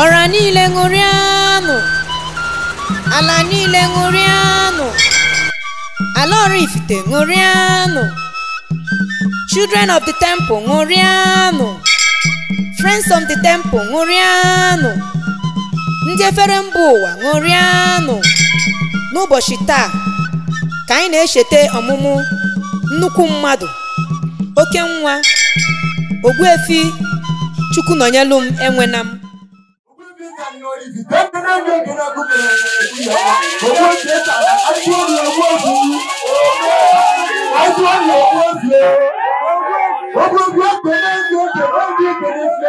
ọra niile ṅụrịanụ ala niile ṅụrịanụ ala ifite ṅụrịanụ children of the temple ṅụrịanụ friends of the temple ṅụrịanụ ndị efere mba ụwa ṅụrịanụ n'ụbọchị taa ka anyị na-echeta ọmụmụ nnukwu mmadụ oke nwa ogbuefi chukwu nọnyelụ m enwena m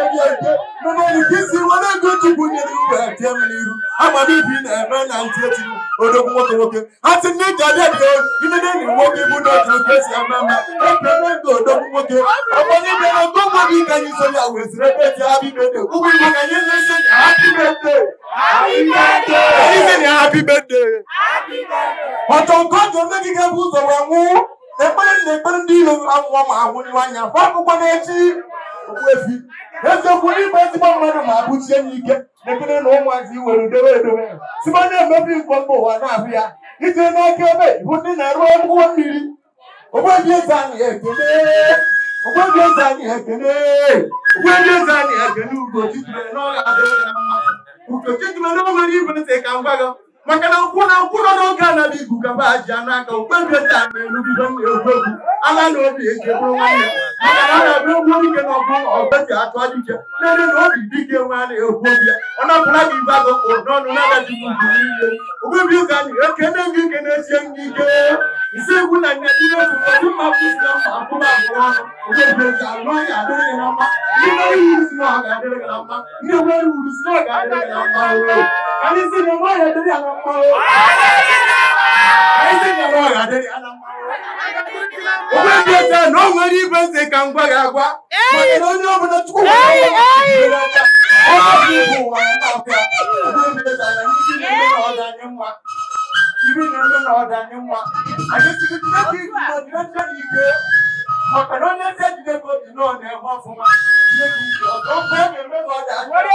ete n'elu ka isi ego chukwu nyere iwe na-eme na ndị dị nwoke bụ n'otu otu esi ama ama ekene ndụ odogwu nwoke ọgbanye mere ogo ụgwọ gị ka anyị ebe ji ụgwọ igbo na-eso ya ha bibede anyị ya ha ọtọ nke nne gị ga-ebu ụzọ wee nwụ ekpere na ekpere ndị ma ahụ akwụkwọ okpuezi eziokwu n'ime ezigbo mmadụ ma abụchie ya ike na na ụmụazị iwere dowe edowe site na-emebi mgbe mba ụwa na-abụ ya ije n'aka ebe bụ ndị na-arụ ụgbọ mmiri ogbebi eze anyị ekene ogbebi eze anyị ekene eze anyị ekene adịghị ntị ka m gwa gị maka na nkwụ na nkwụ nọ n'oge anaba igu gaba ji n'aka okpebi eze a na-erubido na egwu egwu ala na obi eje bụrụ nwanne maka na na-ebe egwu na ọbụ ọgbeti atụ ajụche na na obi dike nwe a na-ekwu obi ya ọ napụla gị ibe agụ kpụrụ n'ọnụ na-agaji ugwu niile ụka na ike e na-esie gị ike isi egwu na dị mma kwụsị mma akwụba abụọ nwere ndị nwere iwu si na ọ ga-adịrị na mma Kali sinema ya dari anak mau. Kali sinema ya dari anak mau. Obe gbèsè náà wọ́n rí gbèsè kan gbára wa. Mọ̀tò lóyún ọmọ náà tukú wà ní ọ̀gbìn rẹ̀. Ọmọ mi kò wà ní ọ̀gá. Obe gbèsè àná ní ibi ní ọ̀dà ní mwa. Ibi ní ọ̀dà ní mwa. Àti ti ti náà kí ìgbìmọ̀ ní ọjọ́ yìí gbé. Mọ̀tò lóyún ẹsẹ̀ ti dé kóòtù náà ní ẹ̀fọ́ fún wa. Ilé ìgbìmọ̀ tó ń pẹ́ mi mẹ́fọ́ dà. Wọ́n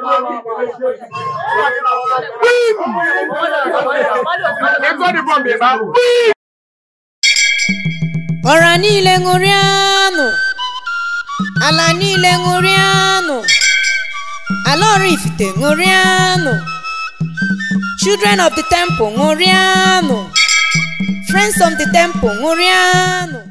ọra niile ṅụrịanụ ala niile ṅụrịanụ ala Oraifite ṅụrịanụ children of the temple ṅụrịanụ friends of the temple ṅụrịanụ